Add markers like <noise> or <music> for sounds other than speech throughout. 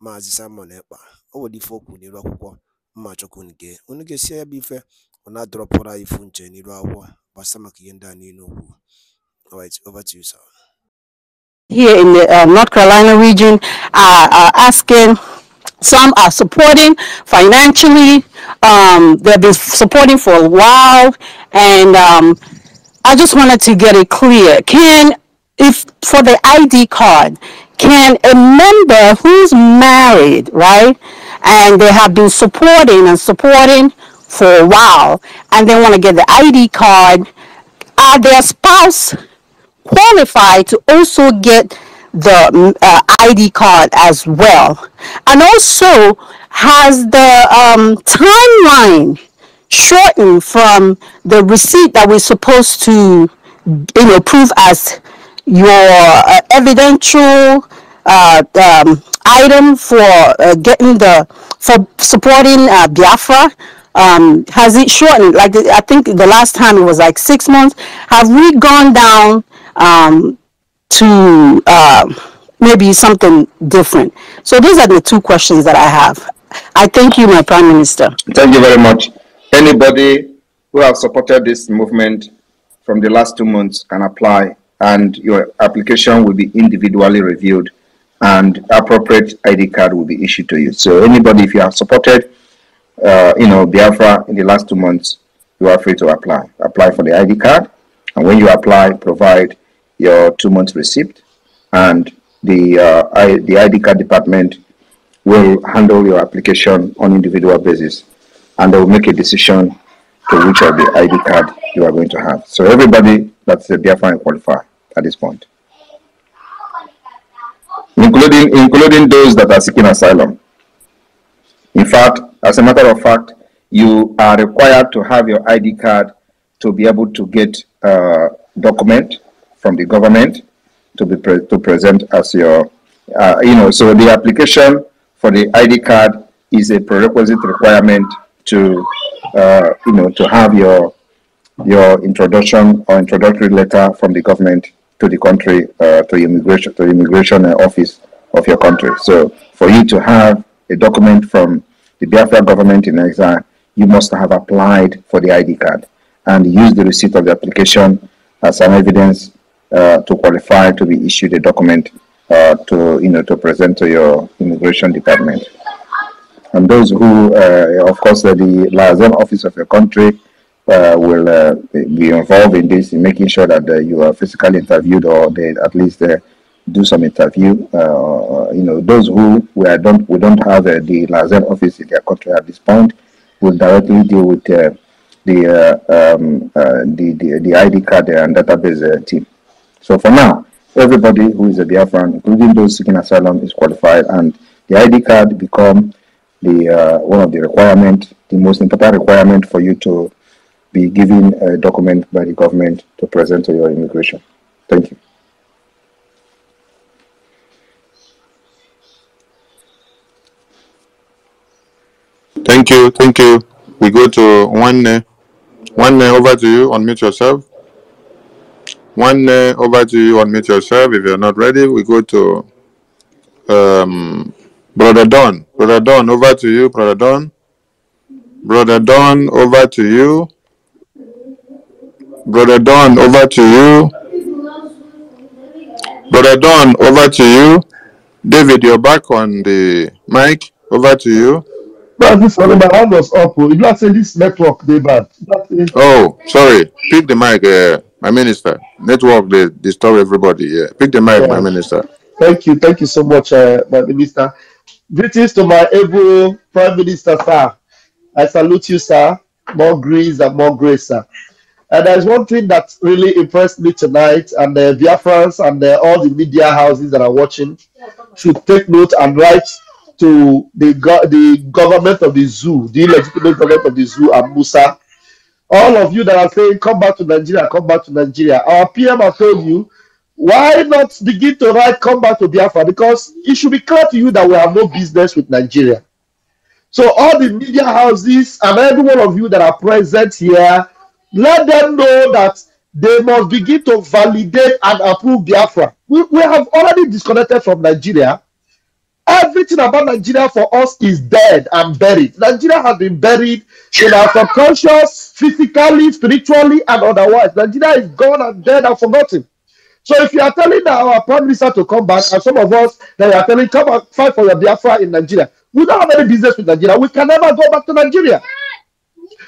Maazị Simon Ekpa o nwere ife o kwuru akwụkwọ mma chọkwu unu gee unu ya bụ ife ọ anyị ifu nche n'iru akwụkwọ gbasa maka ihe ndị a niile o over to you, sir. Here in the uh, North Carolina region are, are asking, some are supporting financially, um, they've been supporting for a while, and um, I just wanted to get it clear. Can, if for the ID card, can a member who's married, right, and they have been supporting and supporting for a while, and they want to get the ID card, are their spouse qualified to also get the mm, uh, ID card as well? And also, has the um, timeline shortened from the receipt that we're supposed to, you know, prove as your uh, evidential uh, um, item for uh, getting the for supporting uh, Biafra? Um, has it shortened? Like I think the last time it was like six months. Have we gone down um, to uh, maybe something different? So these are the two questions that I have. I thank you, my Prime Minister. Thank you very much. Anybody who has supported this movement from the last two months can apply and your application will be individually reviewed and appropriate ID card will be issued to you. So anybody, if you have supported, uh, you know, Biafra in the last two months, you are free to apply. Apply for the ID card, and when you apply, provide your two months receipt, and the uh, I, the ID card department will handle your application on individual basis, and they will make a decision to which of the ID card you are going to have. So everybody that's the definite qualifier at this point, including including those that are seeking asylum. In fact, as a matter of fact, you are required to have your ID card to be able to get a document from the government to be pre to present as your, uh, you know, so the application for the ID card is a prerequisite requirement to, uh, you know, to have your your introduction or introductory letter from the government to the country, uh, to immigration, to the immigration uh, office of your country. So for you to have a document from the Biafra government in exile, you must have applied for the ID card and use the receipt of the application as an evidence uh, to qualify to be issued a document uh, to you know to present to your immigration department. And those who, uh, of course, the liaison office of your country uh, will uh, be involved in this, in making sure that uh, you are physically interviewed or they at least uh, do some interview. Uh, you know, those who we don't we don't have uh, the Lazer office in their country at this point will directly deal with the, um, the, the the ID card and database team. So for now, everybody who is a Biafran, including those seeking asylum, is qualified, and the ID card become the one of the requirement, the most important requirement for you to be given a document by the government to present to your immigration. Thank you. Thank you, thank you. We go to one, uh, one uh, over to you, unmute yourself. One uh, over to you, unmute yourself. If you're not ready, we go to um, Brother Don. Brother Don, over to you, Brother Don. Brother Don, over to you. Brother Don, over to you. Brother Don, over to you. David, you're back on the mic. Over to you. But this one, my hand was up. Oh. If are saying this network, they bad. Oh, sorry. Pick the mic, uh, my minister. Network, they disturb everybody. Yeah. Pick the mic, yeah. my minister. Thank you. Thank you so much, uh, my minister. Greetings to my able Prime Minister, sir. I salute you, sir. More grace and more grace, sir. And there's one thing that really impressed me tonight, and the Via Biafrans and all the media houses that are watching should take note and write to the, go the government of the zoo, the illegitimate government of the zoo, and Musa. All of you that are saying, come back to Nigeria, come back to Nigeria. Our PM has told you, why not begin to write, come back to Biafra? Because it should be clear to you that we have no business with Nigeria. So all the media houses and every one of you that are present here let them know that they must begin to validate and approve Biafra. We, we have already disconnected from Nigeria. Everything about Nigeria for us is dead and buried. Nigeria has been buried in our subconscious, physically, spiritually, and otherwise. Nigeria is gone and dead and forgotten. So if you are telling our prime minister to come back, and some of us that you are telling come and fight for your Biafra in Nigeria, we don't have any business with Nigeria. We can never go back to Nigeria.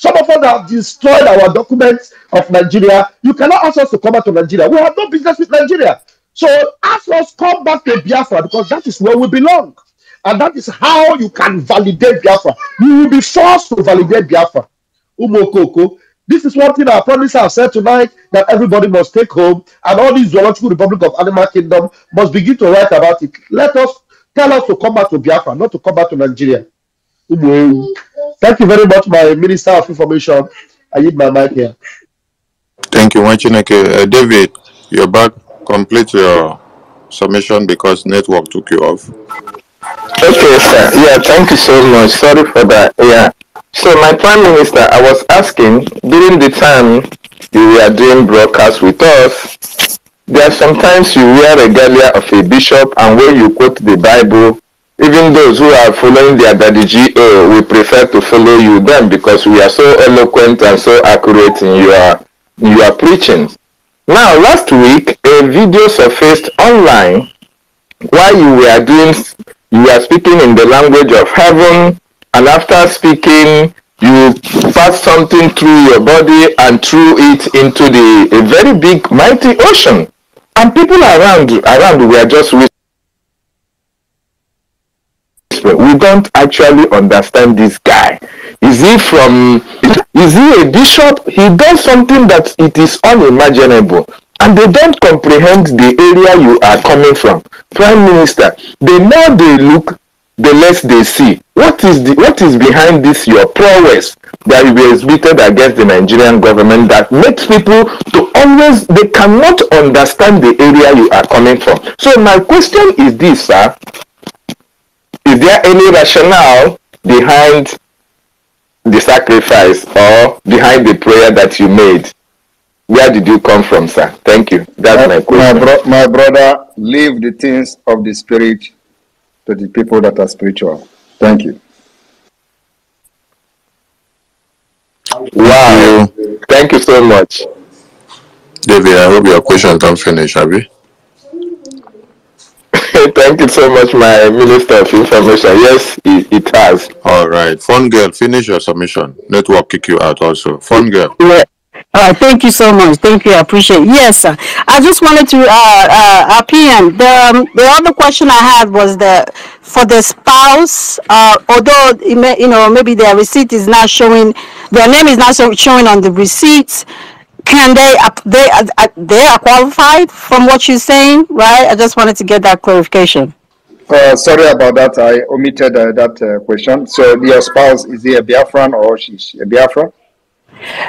Some of us have destroyed our documents of Nigeria. You cannot ask us to come back to Nigeria. We have no business with Nigeria. So ask us come back to Biafra because that is where we belong. And that is how you can validate Biafra. You will be forced to validate Biafra. Umokoko. This is one thing I promise I said tonight that everybody must take home, and all the zoological republic of animal kingdom must begin to write about it. Let us tell us to come back to Biafra, not to come back to Nigeria. Umu. Thank you very much, my Minister of Information. I need my mic here. Thank you, Wanchineke. Uh, David, you're back. Complete your submission because network took you off. Okay, sir. Yeah, thank you so much. Sorry for that. Yeah. So, my Prime Minister, I was asking during the time you were doing broadcast with us, there are sometimes you wear regalia of a bishop, and when you quote the Bible, even those who are following their daddy GA, we prefer to follow you then because we are so eloquent and so accurate in your, in your preaching. Now, last week, a video surfaced online while you were doing, you were speaking in the language of heaven, and after speaking, you pass something through your body and threw it into the a very big, mighty ocean. And people around around were just gospel. We don't actually understand this guy. Is he from, is he a bishop? He does something that it is unimaginable. And they don't comprehend the area you are coming from. Prime Minister, the more they look, the less they see. What is the what is behind this your prowess that you exhibited against the Nigerian government that makes people to always they cannot understand the area you are coming from. So my question is this, sir is there any rationale behind the sacrifice or behind the prayer that you made? Where did you come from, sir? Thank you. That's my, my question. My, bro- my brother, leave the things of the spirit to the people that are spiritual. Thank you. Wow. Thank you so much. David, I hope your questions don't finish, have you? Thank you so much, my Minister of Information. Yes, it, it has. All right. Fun girl, finish your submission. Network kick you out also. Fun girl. Yeah. All right, thank you so much. Thank you. I appreciate it. Yes, sir. I just wanted to uh, uh, opinion. The, um, the other question I had was the for the spouse, uh, although may, you know maybe their receipt is not showing, their name is not showing on the receipts can they they uh, uh, they are qualified from what you're saying right i just wanted to get that clarification uh, sorry about that i omitted uh, that uh, question so your spouse is he a biafran or she's a biafran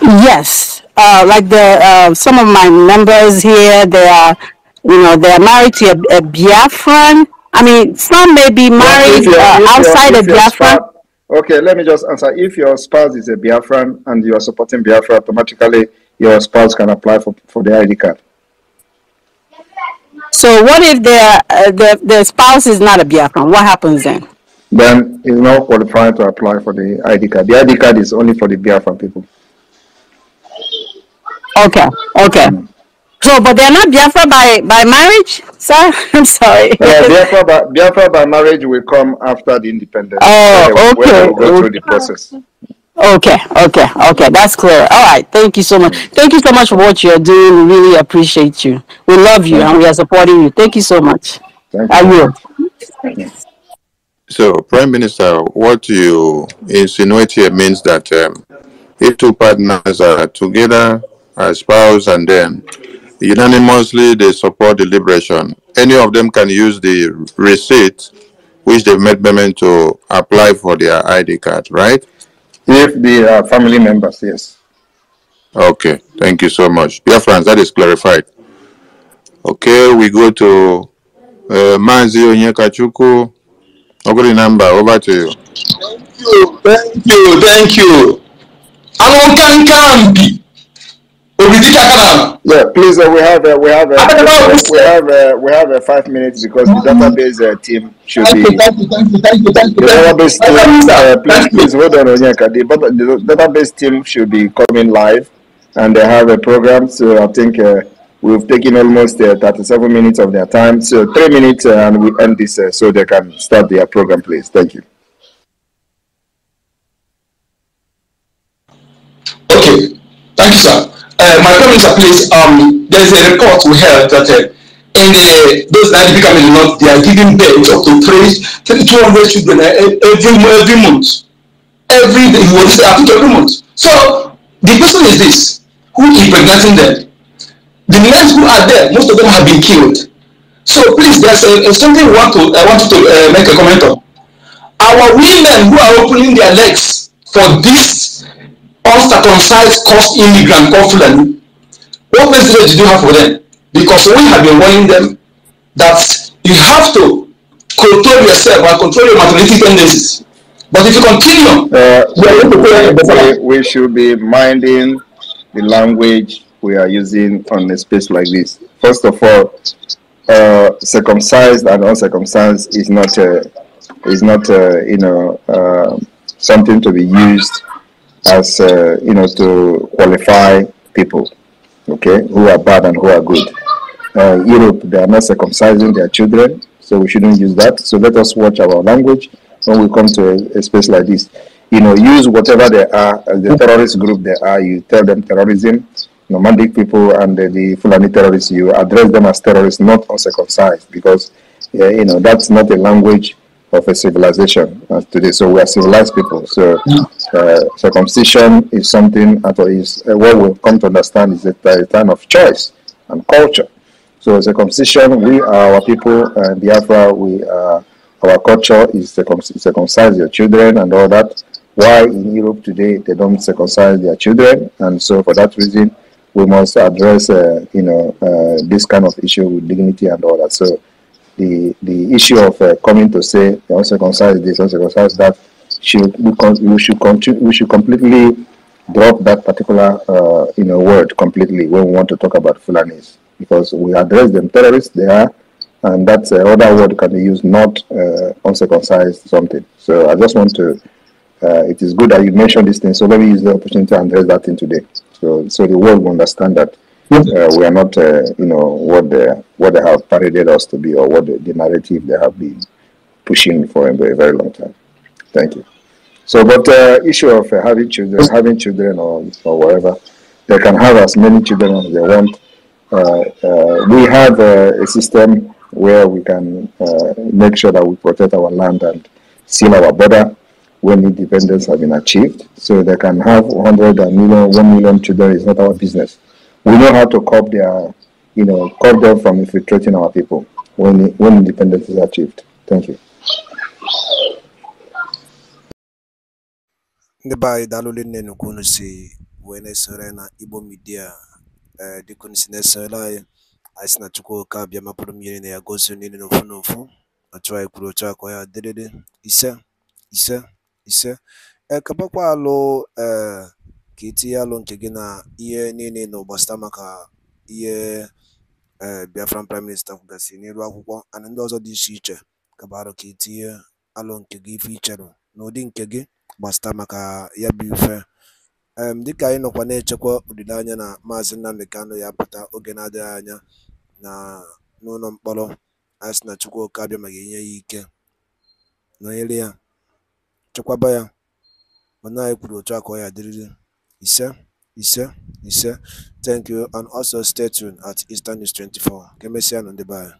yes uh, like the some of my members here they are you know they are married to a, a biafran i mean some may be married yeah, you outside of Biafra. a biafran okay let me just answer if your spouse is a biafran and you are supporting biafra automatically your spouse can apply for, for the ID card. So what if their, uh, the spouse is not a Biafran? What happens then? Then he's not qualified to apply for the ID card. The ID card is only for the Biafran people. Okay, okay. Mm. So, but they're not Biafra by, by marriage, sir? <laughs> I'm sorry. Uh, Biafra, <laughs> by, Biafra by marriage will come after the independence. Oh, okay. When they go through the process. Okay, okay, okay. That's clear. All right. Thank you so much. Thank you so much for what you're doing. We really appreciate you. We love you and we are supporting you. Thank you so much. Thank I will. So, Prime Minister, what you insinuate here means that um, if two partners are together, a spouse, and then unanimously they support the liberation, any of them can use the receipt which they made payment to apply for their ID card, right? If the uh, family members, yes. Okay, thank you so much. Dear friends, that is clarified. Okay, we go to uh, Manzi Onyekachuku. Ogri number, over to you. Thank you, thank you, thank you. I'm on bi. Yeah, please. Uh, we have uh, we have uh, we have uh, we have uh, five minutes because the database uh, team should be. Thank you, thank you, thank you, thank you. The database team, uh, please, please hold on, Onyeka. The, the database team should be coming live, and they have a program. So I think uh, we've taken almost uh, 37 minutes of their time. So three minutes, uh, and we end this uh, so they can start their program. Please, thank you. Okay, thank you, sir uh, my comments are placed. Um, there's a report we have that uh, in the, those that become a lot, they are giving birth up to three, three 200 children uh, every, every month. Every day, you I think every month. So the question is this who is impregnating them? The men who are there, most of them have been killed. So please, there's a, a something want to, I want to uh, make a comment on. Our women who are opening their legs for this uncircumcised cost immigrant called Fulani, what message do you have for them? Because we have been warning them that you have to control yourself and control your materialistic tendencies. But if you continue, uh, we, we, should be minding the language we are using on a space like this. First of all, uh, circumcised and uncircumcised is not a, uh, is not a, uh, you know uh, something to be used as uh, you know to qualify people, okay, who are bad and who are good. Uh, Europe, they are not circumcising their children, so we shouldn't use that. So let us watch our language when we come to a, a space like this. You know, use whatever they are, uh, the terrorist group they are. You tell them terrorism, nomadic people, and the, the Fulani terrorists. You address them as terrorists, not uncircumcised, because uh, you know that's not a language of a civilization today. So we are civilized people. So. Yeah uh, circumcision is something is uh, what we've come to understand is a, a time of choice and culture. So circumcision, we are our people and uh, Biafra, we are, uh, our culture is circumcise your children and all that. Why in Europe today they don't circumcise their children? And so for that reason, we must address, uh, you know, uh, this kind of issue with dignity and all that. So the, the issue of coming to say, don't circumcise this, don't circumcise that, should we should continue, we should completely drop that particular uh, you know word completely when we want to talk about Fulanis because we address them terrorists they are and that's uh, other word can be used not uh, uncircumcised something so I just want to uh, it is good that you mentioned this thing so let me use the opportunity to address that thing today so so the world will understand that uh, we are not uh, you know what the what they have paraded us to be or what the, the narrative they have been pushing for a very, very long time. Thank you. So, but the uh, issue of uh, having children, mm. having children or, or whatever, they can have as many children as they want. Uh, uh we have a system where we can uh, make sure that we protect our land and seal our border when independence has been achieved. So they can have 100 million, million, children is not our business. We know how to curb their, you know, curb them from infiltrating our people when, when independence is achieved. Thank you. ndị be anyị daalụ nne nkwu unu si wee na-esore na igbo midia ee eh, dịka unu si na-esore anyị anyị si na chukwu oke abịa mapụrụ m na ya gosi niile n'ofu n'ofu ọchụ anyị kwuru ochu akọ ya dịrịrị ise ise ise ekebakwa eh, alụ ee eh, ka itinye alụ nke gị na ihe niile na ụgbasịta maka ihe ee biafran prime minista kwugasị n'elu akwụkwọ ana ndị ọzọ dị iche iche kabarụ ka itinye alụ nke gị ife icherụ n'ụdị nke gị gbasta maka ya bụ ife um dịka anyị nọkwa na-echekwa olileanya na maazị Nnamdi Kanu ya pụta oge na-adịghị anya na n'ụlọ mkpọrọ anyị sị na Chukwuka abịa maka inye ya ike nọnyere ya chekwaba ya mana anyị kwuru otu a ka ọ ya dịrịrị ise ise ise thank you and also stay tuned at Eastern 24 ka emesịa nụ ndị be anyị